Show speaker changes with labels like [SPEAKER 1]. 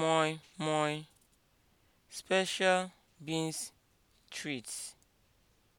[SPEAKER 1] moi moi, special beans treats.